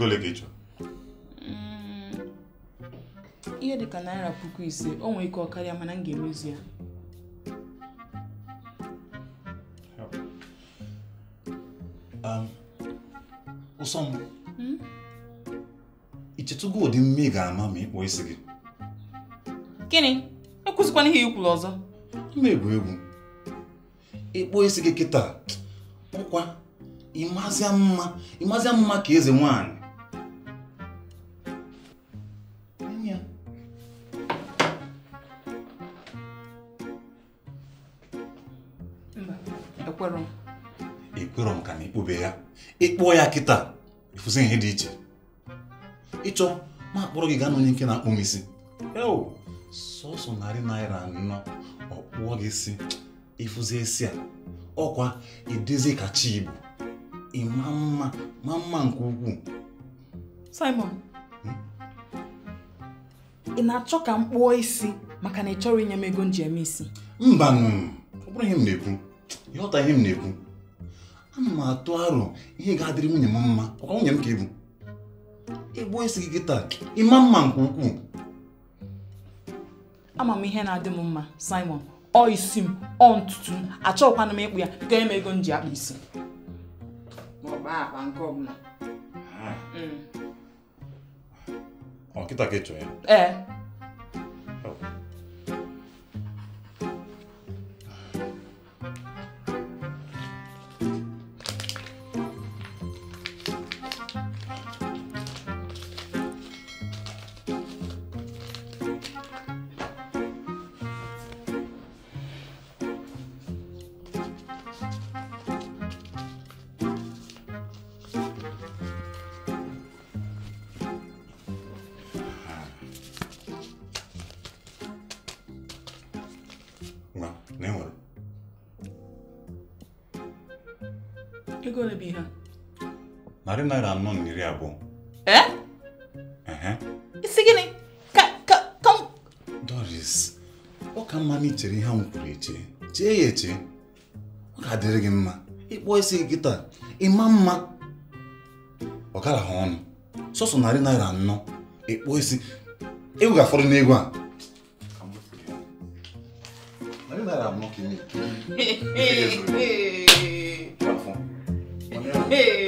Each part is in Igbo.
ego ole ka ị chọrọ mm, ihe dịka naira puku ise o nwee ike ọ karịa mana m ga-emezu ya um, ụsọ m hmm? ichetụgo ụdị mme ga-ama ma ị isi gị gịnị ekwụzikwana ihe ikwuru ọzọ ime egwu egwu ịkpọ isi gị kịta nkwa ịmazịa mma ịmazịa mma ka eze nwaanyị mgbe ya ịkpọọ ya kịta ịfụzi ihe dị iche ịchọ ma akpọrọ gị gaa n'onye nke na-akpụ m isi sọsọ narị naira anọ ọ kpụọ gị si ịfụzi esi a ọkwa idezi kacha igbo ịma mma ma mma nke ukwuu Simon hmm? ị na-achọ ka m kpụọ isi maka na ị chọrọ inye m ego m isi mba ọ bụrụ ihe m na-ekwu ịghọta ihe m na-ekwu ana m atụ arọ ihe ga-adịrị nwunye m mma ọkwa nwunye m ka ebu ịgbuo isi gị taa ịma mma nke ukwuu ama m ihe na-adị m mma Simon ọ isi m ọ ntutu m achọghịkwana m ịkpụ ya ka eme ego m ji akpa isi ọkịta hmm. ka ị chọrọ ya ee na e nwere ego ole bụ ihe narị naira anọ na iri abụọ isi gịnị ka Doris ọ ka mma na i chere ihe ahụ kwuru eche chee ya eche ọ ka dịrị e gị e mma ịkpọ isi gị taa ịma mma ọ gara ha ọnụ sọsọ narị naira anọ ịkpọ isi ewu e ga afọrọ n'ego a Hey, hey, hey, kí Hey.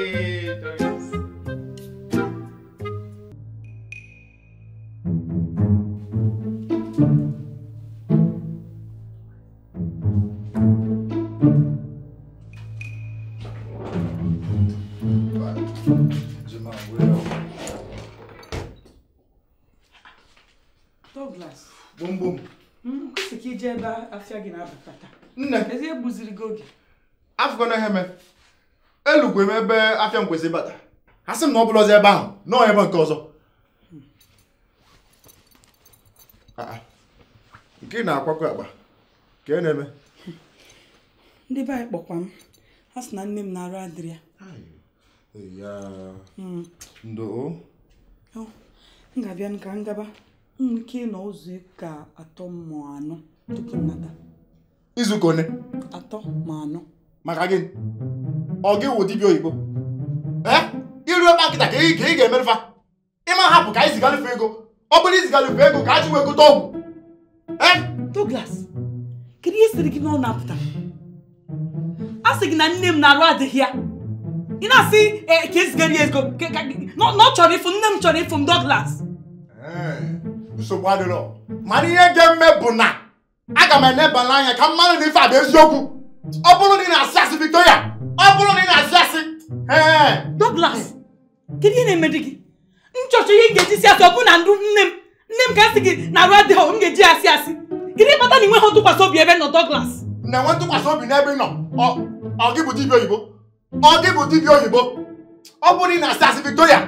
ebe afịa gị na-abata taa. nne ezi egbuziri gị oge afụkọna ihe eme elukwe m ebe afịa m kwesịrị ịbata ha sị m na ọ bụla ọzọ ebe ahụ nọọ ebe nke ọzọ ah, ah. nke ị na-akwakọ akpa ka ị e na-eme ndị be anyị kpọkwa m ha sị na nne m na-arụ adịrị ya hmm. ndo oh, m ga-abịa ka ngaba nwere ike ịnọ ụzọ ka atọ mmụọ anọ tupu nnata izuụka one atọ ma anọ maka gịnị ọ gị wụ dibịa oyibo eh? iru ebe akịta ka ị ga-emerụfa ịma hapụ ka anyị zigarufe ego ọ bụrụ izigarufe ego ka a jiwe gote eh? ọgwụ Douglas kedu ihe siri gị n'ọ na-apụta a sị gị na nne m na-arụ adịghị ya ị na-asị eh, ka ezigara ya ego na ọ chọrọ ịfụ nne m chọrọ ịfụ m Douglas nsogbu adịrọ mana ihe ga-eme bụ na aga m enebala anya ka mmanụ n'ife ife a bụ eziokwu ọ bụrụ na ị na-asị asị Victoria ọ bụrụ na ị na-asị asị Douglas kedu ihe na-emedi gị nchọchọ ihe ị ga-eji si asị ọ bụ na ndụ nne m nne m ka asị gị na arụ adịghị m ga-eji asị asị kedu ịkpata na ịnweghị ntụkwasị obi ebe nọ Douglas na-enwe ntụkwasị obi n'ebe ị nọ ọ gị bụ dibịa oyibo ọ gị bụ dibịa oyibo ọ bụrụ na ị na-asị asị Victoria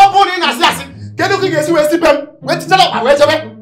ọ bụrụ na ị na-asị asị kedu ka ị ga-esi wee si m wee tichara ọkpa wee chebe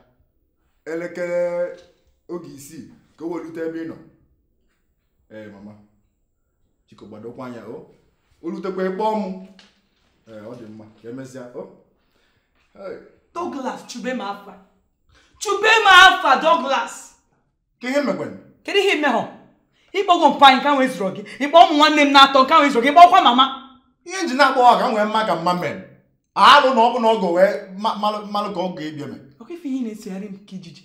elekere oge isii ka o welute ebe ị nọ ee mama chiko gbadokwa anya o olutekwa ekpe ọmụ, ee ọ dị mma ka emesịa o Douglas chube m afa chube m afa Douglas ka ihe mekwenụ kedu ihe imehọ ịkpọgo mpa anyị ka nwee zụrụ gị ịkpọ ụmụ nwanne m na-atọ nka nwee zụrụ gị ịkpọkwa mama ihe nji na-akpọ ka nwee mma ka mma mere alụ na ọ bụ na ọgọ wee malụ ka ọ ga ebi eme. nakwa ife ihe na-esegharị m ka ijiji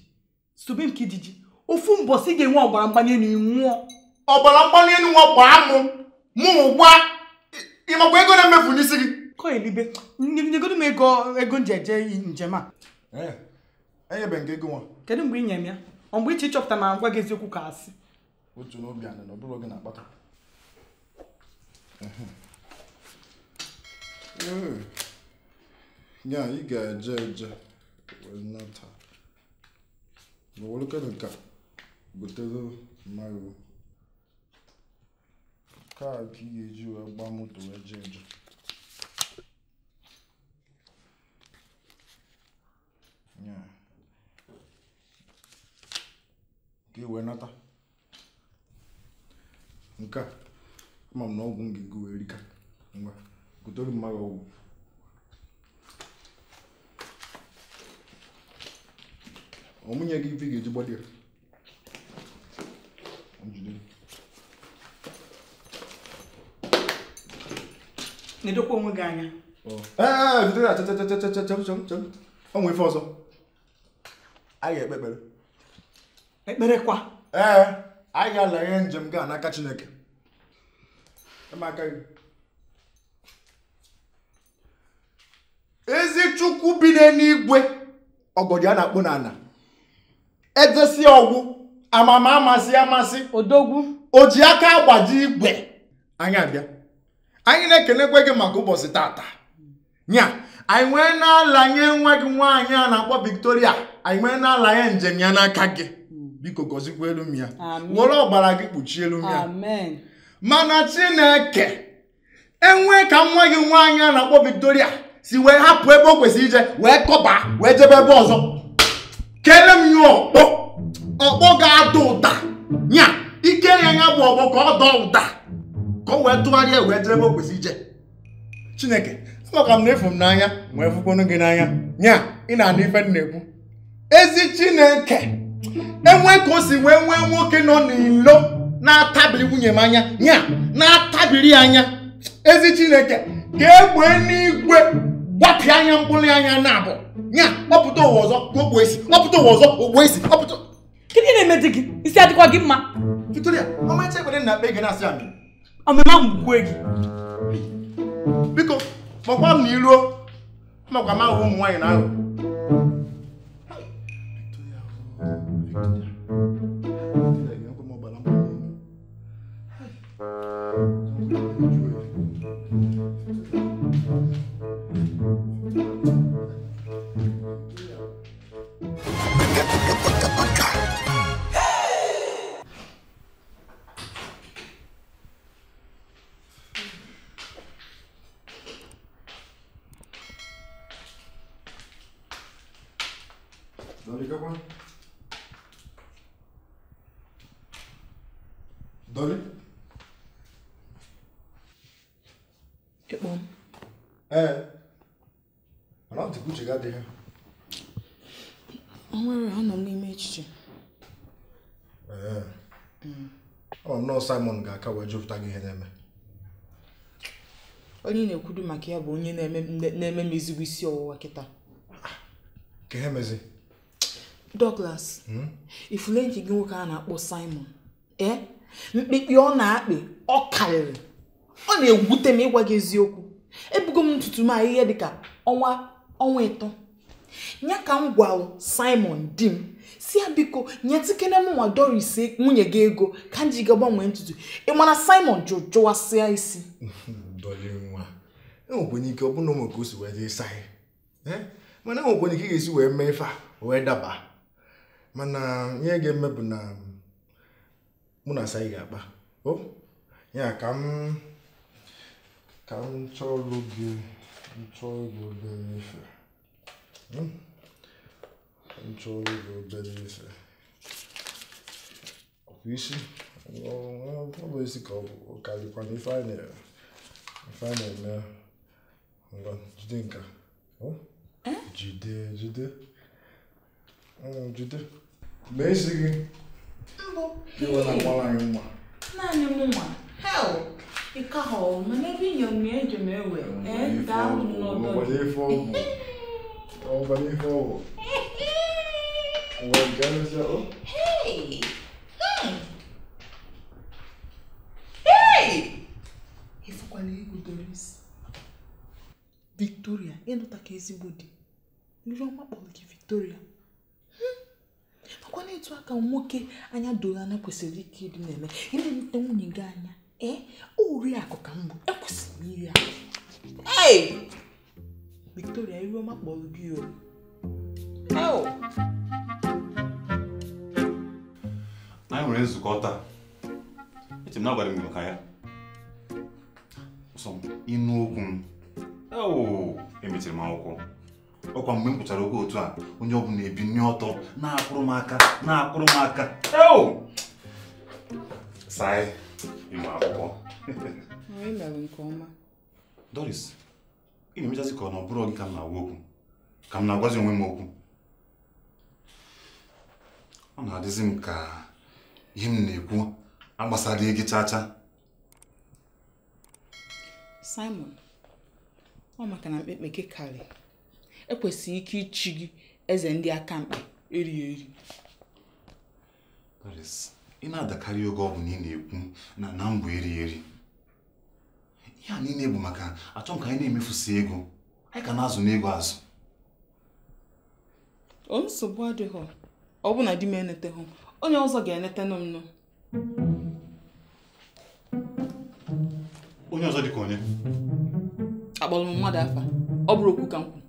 sobe m ka ijiji ofu mbọsị ị ga-enwe ọgbara mgbali elu nwụọ ọgbara mgbali elu bụ gbaa mụ mụ gwa ịmakwa ego na-emefu n'isi gị kọ elibe nyegodo m ego ego nji eje njem a e, enyebe nke ego nwa kedu mgbe ị nye m ya ọ mgbe iche ịchọpụta ma ngwa gị eziokwu ka asị otu n'obi anị na ọbụrụ bụrụ na-akpata ya ị ga-eje eje nnata ma welekere nke a butere mmadụ kaa ka ị ga-eji wee gba moto wee jee njem ka ị wee nata nke a ama m na ọgwụ m ga-ego ngwa gotere mmadụ ọmụnye gị ife ga-eji gbadi onwe e, e, onwe ife ọzọ anyị ga-ekpe ekpere ekpere kwa ee anyị ga-ala njem gaa n'aka chineke e aka gị ezi chukwu bi n'eluigwe ọgọdị a na-akpụ n'ala ejesi ọgwụ amama amasị amasị odogwu o ji aka agbaji igwe anyị abịa anyị na-ekenekwe gị maka ụbọchị tata nya anyị nwee na-alanye nwa gị nwaanyị a na-akpọ Victoria anyị nwee na-alanye njem ya n'aka gị biko gọzikwa elu m were ọgbara gị kpuchie elu m mana Chineke enwee ka nwa gị nwaanyị a na-akpọ Victoria si wee hapụ ebe o kwesịrị ije wee kọba wee jebe ebe ọzọ keele m ya ọkpọ ọkpọ ga-ada ụda ya ike ya ya bụ ọkpọ ka ọ dọ ụda ka ọ wee tụgharịa wee dịrebe o kwesị ije chineke amaka m na efu m n'anya wee fụkwanu gị n'anya ya ị na-anụ ife m na-ekwu ezi chineke enwe ka o si wee nwee nwoke nọ n'ilo na-atabiri nwunye m anya ya na-atabiri anya ezi chineke ka egbe n'igwe gbapịa anya mkpụrụ anya na abụ ya kpọpụta ụwa ọzọ ogbo esi kpọpụta ụwa ọzọ ogbo esi kpọpụta gịnị na-eme di gị isi adịkwa gị mma Victoria ọmacha ekpere na akpa ego na-asị amị ọmịma mgbukwe gị biko kpọkwa m na iruo makwa ma ụmụ nwaanyị na ahụ aka wee gị ihe na-eme onye na ekwudo maka ya bụ onye na-eme m ezigbo isi ọwụwa kịta ka Douglas hmm? ifule nke gị nwoke a na-akpọ Simon ee eh? mkpikpi ọ na-akpị ọ karịrị ọ na-egwute m ịgwa gị eziokwu ebugo m ntutu m ahịhịa dịka ọnwa ọnwa ịtọ ya ka m gwalụ simon di m si ya biko nye tikene nwa doris e, nwunye gị ego ka m ji ga gbanwee ntutu ị mana simon jụrụ jụwasịa isi enwekwenye e ike ọ bụna ụmụ ka osi si wee jee saa e? mana enwekwenye ike ị ga-esi wee mee ife a wee daba mana ihe ga-eme bụ na mm, mụ na asa ga-akpa o ya ka m ka m chọọ ọrụ gị chọọ gị obere ife Hum? Controle do obediência. Ofishi. Well, I'm going to call California Finance. Finance, man. I'm going to think. Oh? Jide, Jide. Oh, bem Basically. eu vou na kwala yuma. Na ni e Hell. Ikaho, mene bi nyomie me we. Eh, da no do. Mo le fo. Então vamos vou. O engano já. Oh. Hey! Hey! Hey! Ifukwala ego Doris. Victoria, ịnụta ka ezigbo di. Nri ọma kpọrọ gị Victoria. Makwana etu aka nwoke anya doro anya kwesịrị ike ịdị na-eme. Ị na-enweta nwunye gị anya. Ee, ori akụ ka mbụ. Ekwesịrị Hey! Victoria iwe ọma kpọrọ gị o anyị nwere nzukọ taa eche m na agwara m maka ya sọ m ịnụ okwu m emechiri m akwụkwọ ọkwa mgbe m pụchara okwu otu a onye ọbụla nri ọtọ na-akụrụ m aka na-akụrụ m aka saa ịmụ akwụkwọ Doris ị na-emechazi ka ọ na ọ bụrụ gị ka m na-agwa okwu ka m na-agwazi onwe m okwu ọ na-adịzi m ka ihe m na-ekwu agbasara gị chaa Simon ọ maka na mkpekpe gị e karị ekwesịghị ike ichi gị eze ndị aka mkpa eri eri ị na-adakarị oge ọ bụ na ị na-ekwu na na mbụ eri eri ya a niile bụ maka achọ ka anyị na-emefusi ego anyị ka na-azụ n'ego azụ o nsogbu adịghị ọ bụ na di m eneteghị onye ọzọ ga-enetenụ m nụ onye ọzọ dịka onye akpọrọ m mmadụ afa ọ bụrụ okwu ka m kwu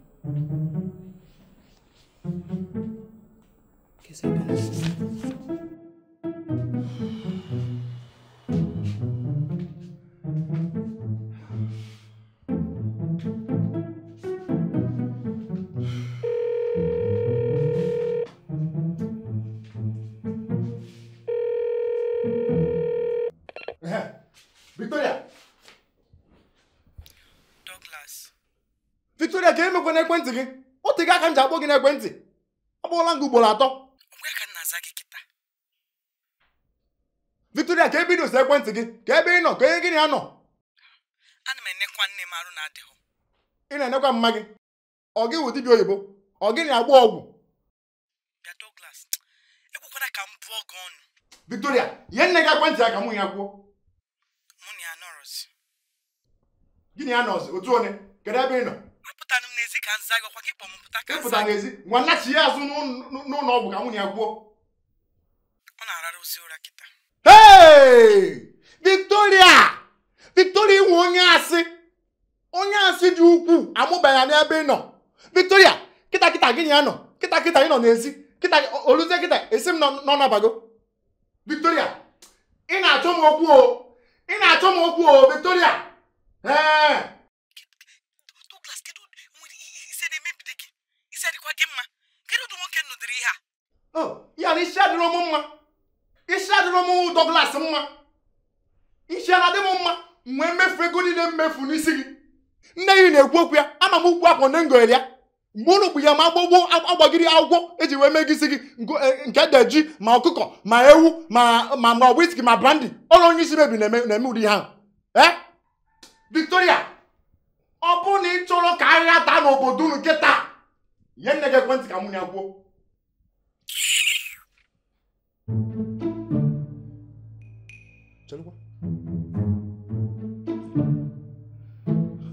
Victoria. Douglas. Victoria ka emekwa n'ekwentị gị otega aka m ji akpọ gị n'ekwentị akpọọla m ugboro atọ ka m na-aza gị kịta Victoria ka ebido si ekwentị gị ka ebe ị nọ ka onye gịnị ya nọ ana m enekwa nne m arụ na ị na-enekwa mma gị ọ gị wụ dibịa oyibo ọ gịnị agba ọgwụ bịa Douglas ka m bụọ gị ọnụ Victoria nye nne gị ekwentị ya ka mụ ya kwuo gịnị ya nọzi otu onye kedu ebe ị nọ ịpụta n'ezi nwannachi ya azụ n'ụlọ ọgwụ ka nwunye ya gwuo ee Victoria Victoria inwe onye asị onye asị dị ukwuu amụbaghị n'ebe ị nọ Victoria kịta kịta gịnị ya nọ kịta kịta ị nọ n'ezi kịta oluzie kịta esi m nọ n'abago Victoria ị na-achọ m okwu o ị na-achọ m okwu o Victoria ee Douglas kedu ise na-emebido gị ise dịkwa gị mma kedu ụdị nwoke nụdịrị ihe a oh, ya na isi adịrọ m mma isi adịrọ m Douglas mma isi adị m mma nwee mmefu ego mmefu n'isi gị nne gị na-ekwu okwu ya ama m ukwu akpọ nne ngoghere ya mgbe ụlọ bụ ya ma agbogbo agbagiri akwụkwọ eji wee mee gị gị e, nke deji ma ọkụkọ ma ewu ma ma ma ma brandi ọrụ onye isi mebi na-eme ụdị ihe eh? victoria ọ bụrụ na ị chọrọ ka ahịa taa n'obodo unu kịta nye nne gị ekwentị ka mụ ya gwuo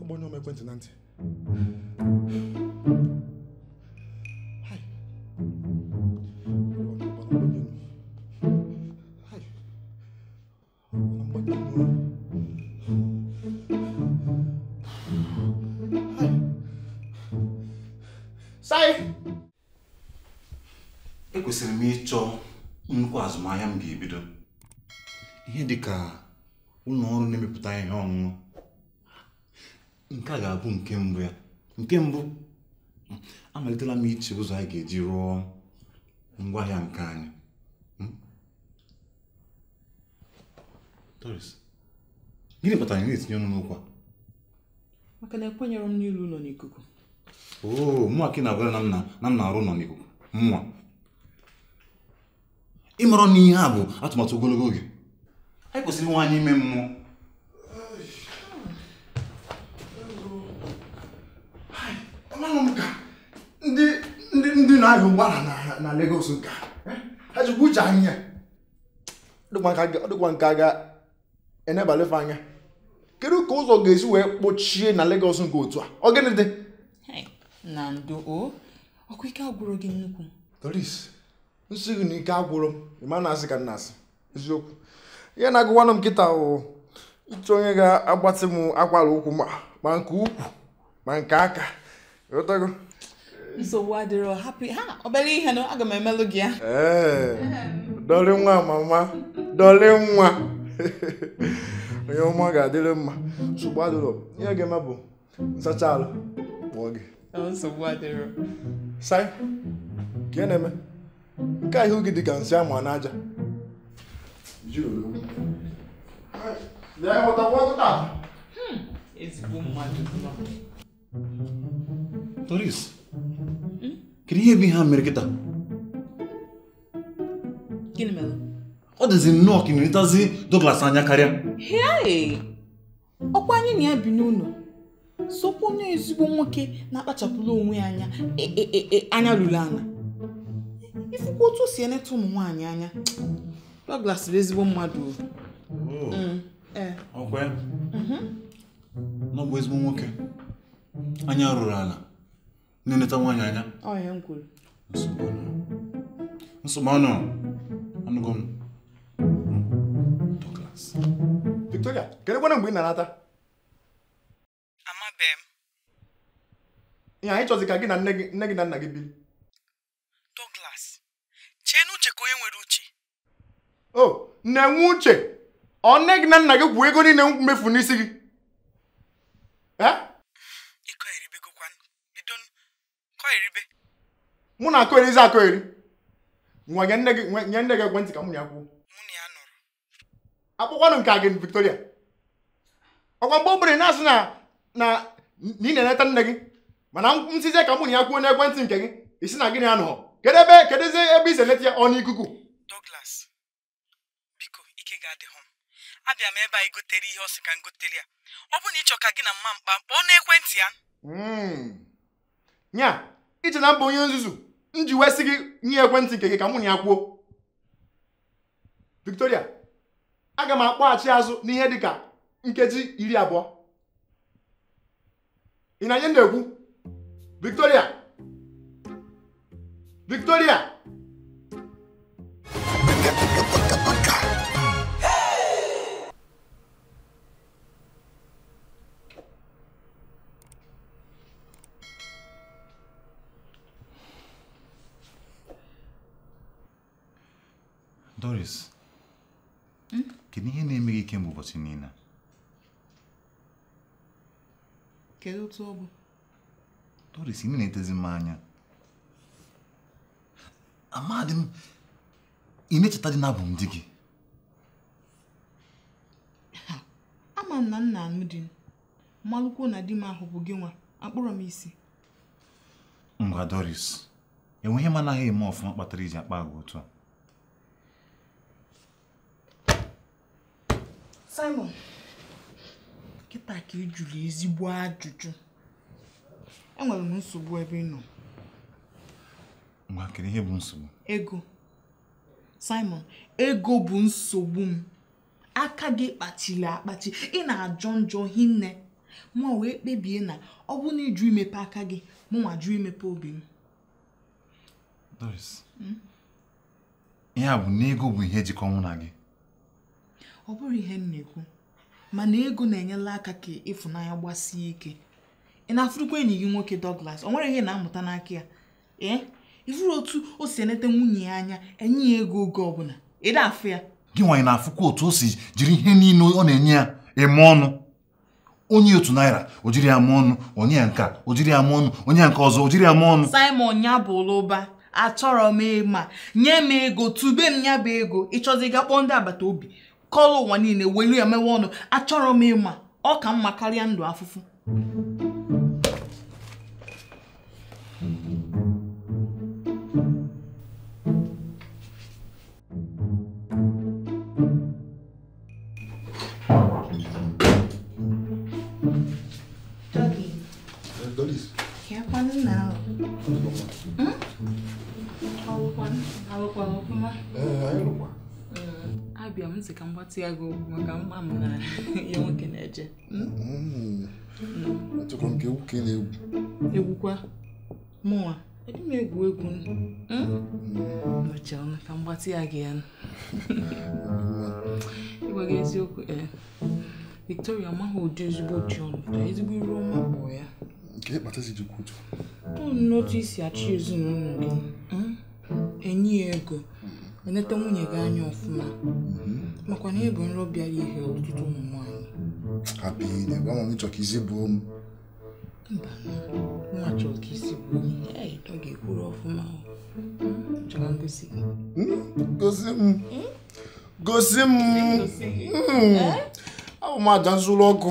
agbanyụ m na ntị bido ihe ka ụlọ ọrụ na-emepụta ihe ọṅụṅụ nke a ga-abụ nke mbụ ya nke mbụ amalitela m iche ụzọ anyị ga-eji rụọ ngwaahịa nke anyị gịnị kpatara ị na-etinye ọnụ n'ụkwa maka na ekwenyere m n'ilu ụlọ n'ikuku oo mụnwa ka ị na-agwara na m na-arụ ụlọ n'ikuku mụnwa ịmarọ na a bụ atụmatụ ogologo oge anyị kwesịrị nwe anyị ime mmụọ amanụ m ka ndị ndị ndị na-ahịa ụgbọala na Lagos nka e? ha jikwa uche anyị ya ọdịkwa nka ga-enebalefe anya kedu ka ụzọ ga-esi wee kpochie na Lagos nke otu a ọ gịnị dị na ndụ o ọkwa ike agwụrụ gị nnukwu Doris nsị gị na ike agwụrụ m ma na-asị ka nna asị eziokwu ihe na-agụwanụ m nkịta wụ ịchọ onye ga-agbatị m akwara ụkwụ ah, ma nke ukwu ma nke aka ghọtago nsogbu adịrọ hapi ha obere ihe na aga m emelụ gị ya ee dọrị nwa mama dọrị nwa onye ọma ga-adịrị mma nsogbu adịrọ ihe ga-eme bụ nsacha alụ kpọọ gị nsogbu adịrọ sai ka na-eme nke a ihu gị dịka nsị ama n'aja hmm, Doris hmm? kedu ihe bụ ihe a mere kịta ọ dịzi nnọọ ka ịnerịtazi Douglas anya karịa ọkwa anyị na ya bi n'ụlọ sokwu onye ezigbo nwoke na-akpachapụla onwe ya anya anya ruru ala ifukwa otu si eneta ụmụ nwaanyị anya Douglas bụ ezigbo mmadụ oh. mm, e. mhm. ọ bụ ezigbo nwoke anya rụrụ ala na-eneta nwaanyị anya nsogbu ọnụ anụgo m Victoria kedu kwana mgbe ị na-anata amabeghị m ihe anyị chọzi ka gị na nne gị na nna gị biri onye nwere uche o na-enwe uche ọ nne gị na nna gị gwuo ego niile mmefu n'isi gị mụ na akọgherizi akọgheri nwa nye nne gị ekwentị ka mụ na ya kwuo akpụkwanụ nke a gị Victoria ọkwa mgbe obere na-asị na na ị na-eneta nne gị mana nsizie ka mụ na ya kwuo n'ekwentị nke gị isi na gịnị anọghọ kedu ebe ebe i si ya ọnụ ikuku Douglas biko ike ga m abịa ebe anyị gotere ihe ọ sị ka ya ọ na ịchọ ka gị na mma mkpa kpọọ n'ekwentị ya iche hmm. na mba onye nzuzu m ji wesị gị nye ekwentị nke gị ka mụ na ya kwuo Victoria aga m akpọghachi azụ n'ihe dị ka nkeji iri abụọ ị na-enye na-ekwu Victoria Victoria! Doris, hum? que nije que é ikem u vocinina. Kedu tsobu? Doris, imi ne tezi Amadim, m imecheta dị n'abụ m di gị ama m na nna anụ di malụkwuo na di m ahụ bụ gị nwa akpọrọ m isi ngwa Doris enweghị m anaghị eme ọfụma kpatara iji akpa agwa otu a Simon kịta ka ị jụrụ ezigbo ajụjụ enwere m nsogbu ebe ị nọ nwa kedu ihe bụ nsogbu ego Simon ego bụ nsogbu m aka gị kpachiri akpachi ị na-ajọ njọ hinne mụnwa wee kpebie na ọ bụ na ịjụ imepe aka gị mụnwa jụ imepe obi m Doris ihe a bụ na ego bụ ihe jikọ mụ na gị ọ bụrụ ihe m na-ekwu mana ego na-enyela aka ka ịfụnanya gbasie ike ị na-afụrụkwa enyi gị nwoke Douglas o nwere ihe na-amụta n'aka ya ee ifuru otu o si enete nwunye ya anya enye ya ego oge ọbụla ịda afụ ya gị nwanyị na-afụkwa otu o si jiri ihe niile ọ na-enye ya eme ọnụ onye otu naira o jiri ya mee ọnụ onye nka o jiri ya mee ọnụ onye nke ọzọ o jiri ya mee ọnụ Simon ya bụ ụlụba achọrọ m ịma nye m ego tube m ya bụ ego ịchọzi ga kpọọ ndị agbata obi kọlụ ụwa niile welu ya mewe ọnụ achọrọ m ịma ọ ka mma karịa ndụ afụfụ mgbatị ya gị okwu maka mma m na ihe nwoke na-eje hmm? mm. achọkwa nke egwu ka ị na-egwu egwukwa mụnwa ebe m egwu egwu nọchara hmm? mm. ka mgbatị ya gị ya ịgwa gị eziokwu ee eh, Victoria amaghị ụdị ezigbo ji ọnụ taa ezigbo iru ọma bụ ya nke ịkpata si jikwa ụtụ ọ n'otu isi achọ ezinụlọ gị hmm? enyi ya ego eneta nwunye gị anya ọfụma makwa na ịbụ nrọ bịara ihe ọtụtụ ụmụ nwaanyị hapụ ile gwa m chọka isi buo nwa chọrọ ka isi buo ọ ga-ekwuru ọfụma hmm, chọrọ ngosi gị hmm, hmm? gosi m gosi m eh? abụ m aja nzụrụ ọkụ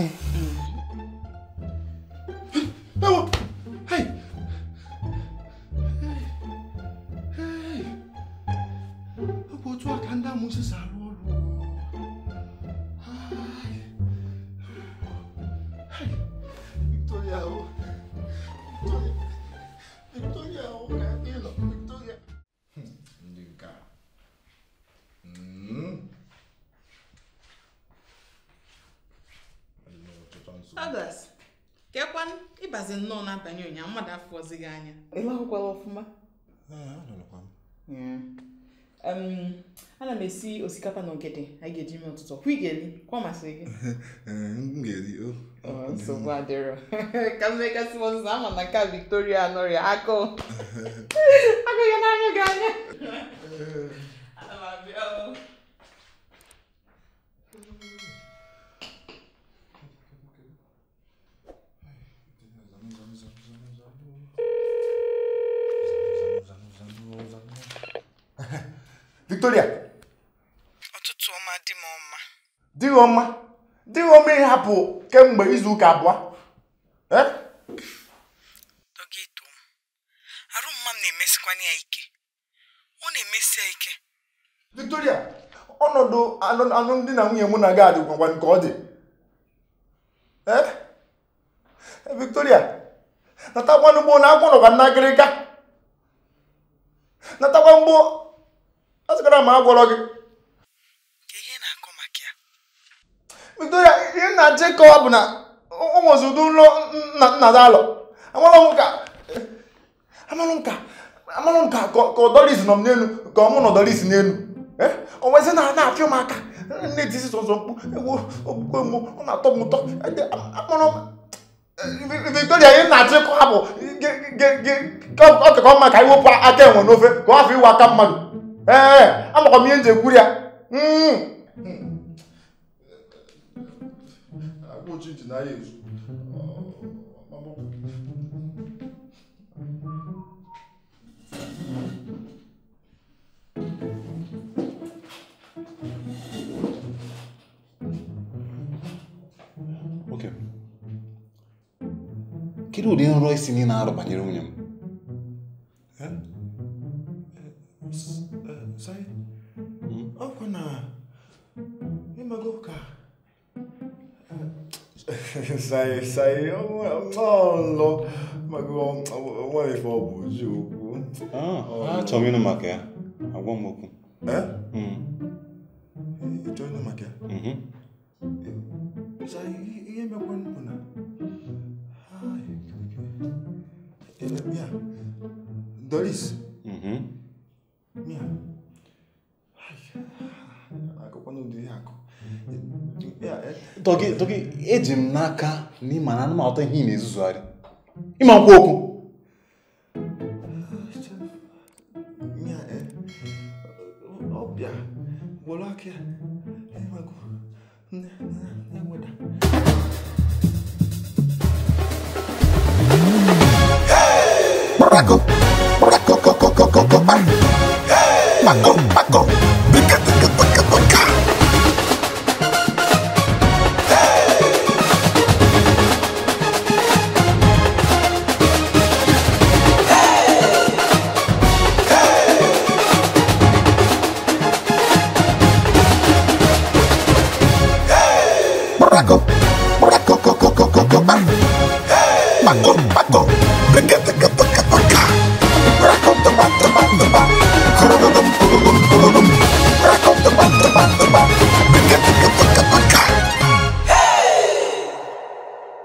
ọ na-atanye ụnyaahụ mmadụ afọzi gị anya ịlahụkwala ọfụma ee, ana um, m esi osikapa na ogede anyị ga-eji mee ụtụtụ kwa ị eri kwa masịrị gị ee, nsogbu adịrọ ka mmekasị ọzụzụ ama na ka Victoria anọrịa agụụ agụghị n'anya gị anya Victoria ụtụtụ ọma dị m ọma dị ọma dị gị ọma ịhapụ kemgbe izu ụka abụọ dọgịto na-emesikwana ya ike ike Victoria ọnọdụ alụmdi na nwunye mụ na gị adịgwagwa nke ọ dị Victoria natakwa mgbo na agwọ nọkwa na agịrịga natakwa mgbo a sịkwara m agwọrọ gị Victoria ihe na-achọ ịkọwa bụ na o nwezi ụdị nrọ nna alọ amalụ nka ka ọdọris nọ m n'elu ka ọ mụ na ọdọris n'elu eh? o nwezi na na-apịa m aka nne disi sọsọ mkpu okpukpe mụ ọ na-atọ m ụtọ e eh, Victoria ihe na-achọ ịkọwa bụ ọ dịka mma ka anyị wepụ aka enwe n'ofe ka ọ hapụ iwe aka mmadụ ee amakwa m ihe nji ekwuri ya kedu ụdị nrọ isi niile na-arụ banyere nwunye m Sorry? Mm? Oh, Kwana. Mimbago ka. Sorry, sorry. Oh, no. Mago, what if I was you? Ah, ah, Tomino Maca. I won't move. Eh? Hmm. Join the Maca. Mm-hmm. Sorry, you ain't my one. Doris. toki toki eji m n'aka na ịma na anụmanụ ihe ị na-ezuzugharị ịma nkwa okwu Paco, Paco, Paco, Paco, Paco, Paco, Paco, Paco, Paco, Paco, mago, Paco,